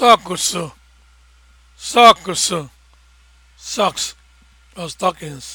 sọks sọks (socks) or stockings